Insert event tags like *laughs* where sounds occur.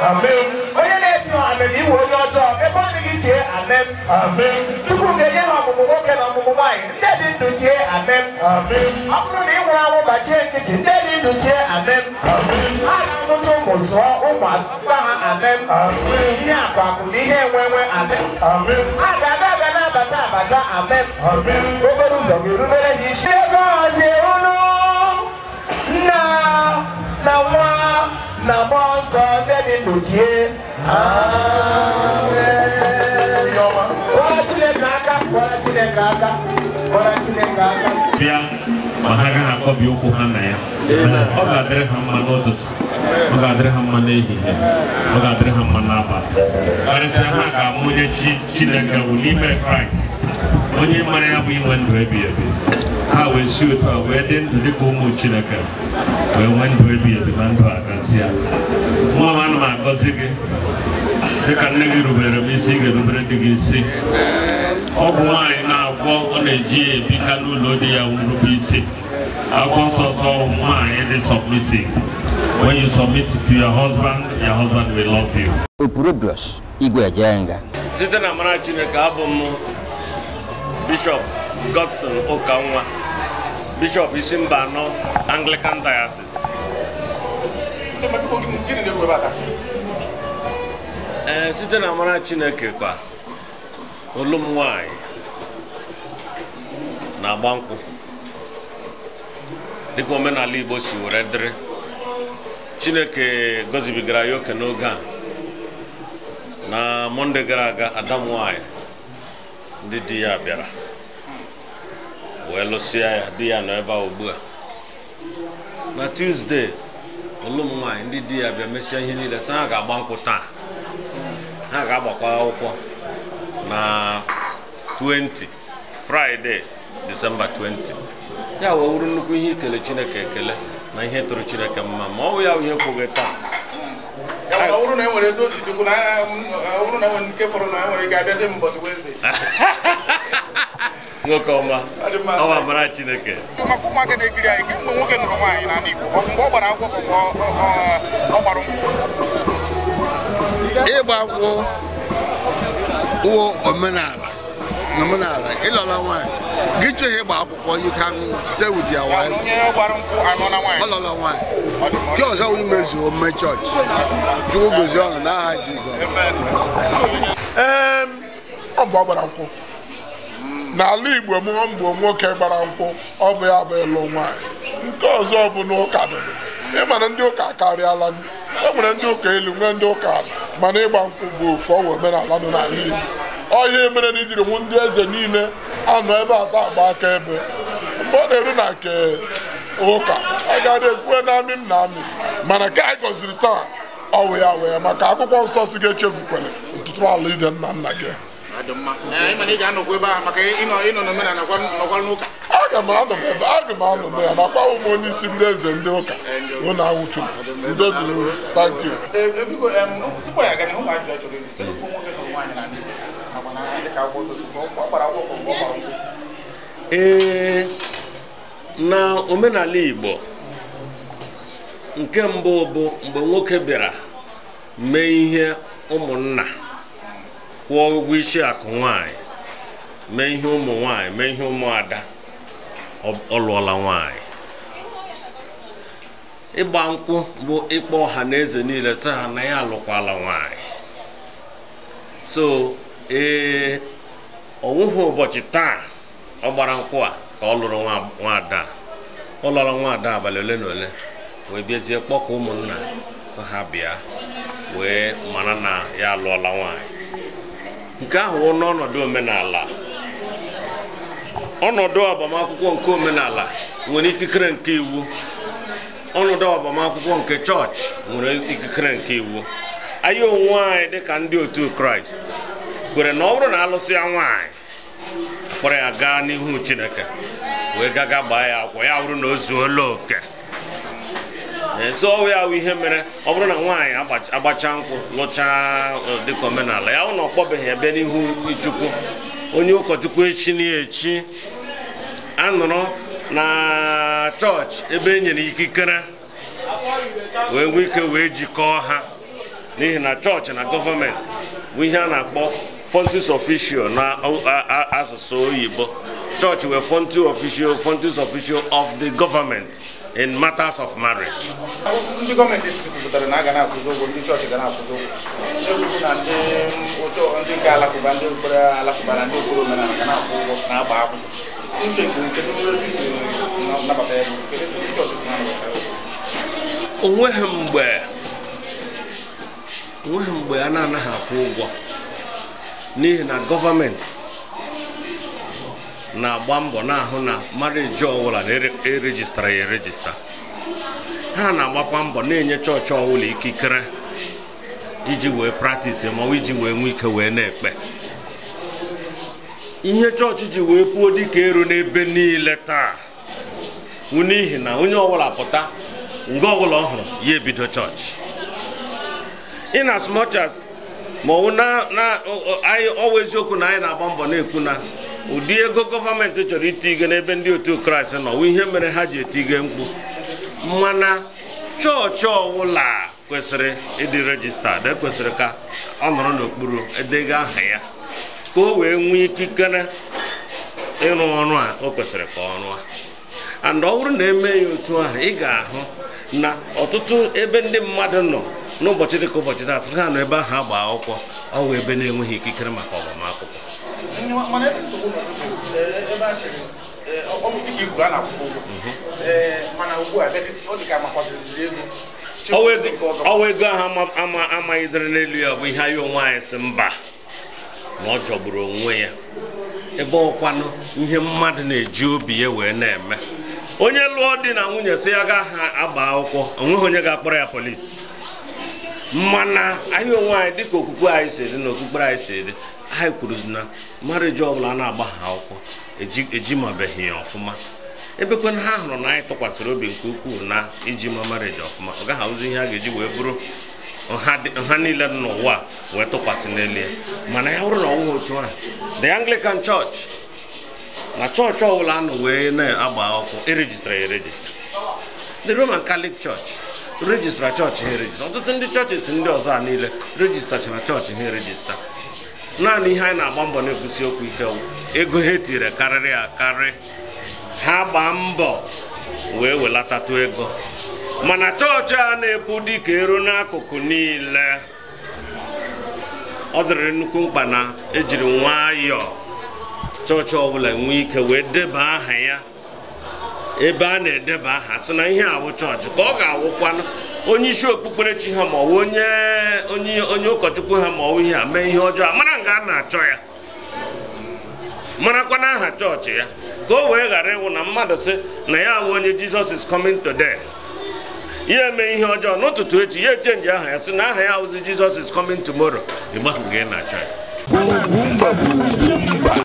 Amen. Onye na-esi Amen. iwu onye ọjọọ, ebe ọ dịghị sie Amen. Amen. Chukwu ga-enye ha ọmụmụ nwoke na ọmụmụ nwaanyị, ndị dị ndụ sie Amen. Amen. Ọ bụrụ na ị nwụrụ anwụ gbachie nkịtị, ndị dị ndụ sie Amen. Amen. Ha na-amụta ụmụ zụọ ụmụ akpa ha Amen. Amen. Ihe akụ akụ na ihe enwenwe Amen. Amen. Ha ga-abịa abịa na-abata abata Amen. Amen. Obere ụzọ ga-erubere ha isi. Ego ọzọ na mmụọ nsọ ndị dị ndụ tie kpọrọ Chineke aka kpọrọ Chineke aka kpọrọ Chineke aka bịa ma ha gaghị akpọbi ụkwụ ha na ya ọ ga-adịrị ha mma n'ụtụtụ ọ ga-adịrị ha mma n'ehihie ọ ga-adịrị ha mma n'abalị karịsịa ha ga-amụ onye Chineke wụ n'ime Kraịst onye mara ya bụ inwe ndụ ebighị ebi ha wee si otu a wee dị ndụ dịka ụmụ chineke wee nwee ndụ ebi ebi na ndụ akasịa nwa m ana m agọzi gị dịka nne gị rubere m isi ị ga-erubere dị gị isi bụ nwaanyị na-agwọ ọ na-eji ya ebika n'ụlọ di ya nrube isi agwọ sọsọ nwaanyị dị sọmisi when you submit to your husband your husband will love you. Opurubrus Igwe Ejenga. site na mara Chineke abụ m Bishọp Godson nwa. Bishop anọ Anglican Diocese ee eh, site na amara Chineke kwa olum nwanyị na-agba nkwụ dịka omenala Igbo si were dịrị Chineke gozibigara ya oke n'oge a na Mọnde gara aga Adam nwanyị ndị di ya bịara wee lụsịa ya di ya nọ ebe a ugbu a na tuzdee ụlụ m nwaanyị ndị di ya bịa mesịa ihe niile sị ha ga-agba nkwụ taa ha ga-agbakwa akwụkwọ na 20 fraịde disemba 20 ya wee wuru nnukwu ihe ikele chineke ekele na ihe tụrụ chineke mma ma ọ bụ ya ihe kwughị taa enwere um, e nke fọrọ na enwere ga abịazi m ụbọchị *laughs* nwoke ọma ọwa mara chineke maka ụmụaka na-ekiri anyị kemgbe nwoke nụrụ nwaanyị na Igbo mgbe ọ gbara akwụkwọ bụ ọ gbara ịgba akwụkwọ wụ omenala na omenala ịlọla nwaanyị gị chọọ ihe ịgba akwụkwọ you can stay with your wife ọlọla nwaanyị nke ọzọ wụ imezu omume chọọchị chukwu gozie ọnụ n'aha Jizọs ee ọ bụ ọgbara gbara akwụkwọ n'ala igbo mụọ mgbo nwoke gbara nkwụ ọ bụ ya bụ ịlụ nwanyị nke ọzọ bụ n'ụka ịmana ndị ụka akarịala e nwere ndị ụka elu nwee ndị ụka mana ịgba nkwụ bụ ofu ọwụ omenala nọ n'ala igbo ọ ihe mere na ijiri nwụ ndị eze niile anọ ebe atọ agba aka ebe mgbe ọ na-eru na nke ụka agaghị ekwue na amị m na amị mana ka anyị gọziri taa ọ wụ ya wee maka akwụkwọ nsọ si ga-echefukwere ntụtụrụ ala ide nna nna gị aga m anọ na ya nakwa ụmụ onye isi ndị eze ndị ụka ụlọ eh, awụchuru ndị duru tanki ee na omenala igbo nke mbụ bụ mgbe nwoke bịara mee ihe ụmụnna kwụọ ụgwọ isi akụ nwanyị mee ihe ụmụ nwanyị mee ihe ụmụada ọ lụọla nwanyị ịgba nkwụ bụ ịkpọ ọha na eze niile sị ha na ya alụkwala nwanyị so ee ọwụhụ ụbọchị taa ọ gbara nkwụ a ka ọ lụrụ nwaada ọ lụrụ nwaada abalị ole na ole wee bịazie kpọkọ ụmụnna sị ha bịa wee mara na ya alụọla nwanyị nke ahụ wụ n'ọnọdụ omenala ọnọdụ agbamakwụkwọ nke omenala nwere ikikere nke iwu ọnọdụ agbamakwụkwọ nke chọọchị nwere ikikere nke iwu anyị onwe anyị dịka ndị otu kraịst kwere na ọ bụrụ na alụsị ya nwanyị kpọrọ ya gaa n'ihu chineke wee gaga gbaa ya akwụkwọ ya bụrụ na o zuola oke zọọ ya ahụ ihe mere ọ bụrụ na nwaanyị agbacha nkwụ lụchaa dịka omenala ya hụ na ọ kpọbeghị ebe n'ihu chukwu onye ụkọchukwu echi na-echi anọrọ na chọọchị ebe e nyere ikikere wee nwee ike wee jikọọ ha n'ihi na chọọchị na gọọmenti bụ ihe a na-akpọ fontus official na asụsụ oyibo chọọchị wee fontus official fontus official of the government in matters of marriage. ndị gọọmenti etiti kwupụtara na a ga na ụgwọ ndị chọọchị ga na ụgwọ ndị ụjọ ụgwọ ndị nabata ya bụ ndị chọọchị si mgbe a na-anaghị akwụ ụgwọ n'ihi na gọọmenti na-agba mbọ na-ahụ na mariji ọbụla na-erejistara e ya erejista ha na-agbakwa mbọ na-enye chọọchị ọbụla ikikere iji wee praktis ma iji wee nwee ike wee na-ekpe ihe chọọchị ji wee puo dịka eru n'ebe niile taa wụ n'ihi na onye ọbụla pụta nge ọbụla ọhụrụ ya ebido chọọchị in as much as ma ọwụ na anyị eziokwu na anyị na-agba mbọ na-ekwu na ụdị ego gọọmenti chọrọ itiige n'ebe ndị otu kraịst nọ ihe mere ha ji etige mkpu mana chọọchị ọbụla kwesịrị ịdị rejistad ekwesịrị ka ọ nọrọ n'okpuru edega aha ya ka o wee nwee ikikere ịrụ ọrụ a o kwesịrị ka ọ rụọ and ọ bụrụ na eme ya otu ahụ ị ga-ahụ na ọtụtụ ebe ndị mmadụ nọ n'ụbọchị dịka ụbọchị taa sị ha nọ ebe ahụ agba akwụkwọ ọ wụ ebe na-enweghị ikikere maka ọgbama ihe ebe nsogbu ebe a sịrị ọ bụ dịka a na-akwụkwọ mana ugbu a ọ dị ka amakwasịrị ego ọwa ego ahụ amaghị dịrị n'elu ya bụ ihe anyị onwe anyị si mba na ọ jọgburu onwe ya ebe ọkwanụ ihe mmadụ na-eji obi ya wee na-eme onye lụọ di na nwunye si ya ga ha agba akwụkwọ onweghị onye ga-akpọrọ ya polisi mana anyị onwe anyị dịka okwukwe anyị si dị na okpukpere anyị si dị anyị kwuru na mariji ọ bụla na-agba ha akwụkwọ ejimabeghị ya ọfụma ebekwe na ha hụrụ na anyị tụkwasịrị obi nke ukwuu na iji ma mariji ọfụma ọ gaghị ahụzi ihe a ga-eji wee bụrụ nha niile dị n'ụwa wee tụkwasị n'elu ya mana ya bụrụ na otu ahụ the anglican church na chọọchị ọbụla nọ wee na-agba akwụkwọ erejistara ya erejista the roman catholic church rejistra chọọchị ha erejista ọtụtụ ndị chọọchịs ndị ọzọ a niile rejistachara chọọchị ha erejista naanị ihe anyị na-agba mbọ na-ekwusi okwu ike ego ha etinyere karịrị akarị ha gbaa mbọ wee welatatụ ego mana chọọchị a na-epu dịka eru n'akụkụ niile ọ dịrị nnukwu mkpa na ejiri nwayọọ chọọchị ọbụla nwee ike wee deba aha ya ebe a na-edeba aha sị na ihe awụ chọọchị ka ọ ga-awụkwanụ onye isi okpukperechi ha ma ọ onye ụkọchukwu ha ma ọ ihe a mee ihe ọjọọ mara nke a na-achọ ya marakwa na aha chọọchị ya ka o wee ghara ịwụ na mmadụ sị na ya bụ onye jizọs is coming today ya eme ihe ọjọọ n'ụtụtụ echi ya echenji aha ya sị na aha ya awụzi jizọs is coming tomorrow ịgbahụ ị na-achọ ya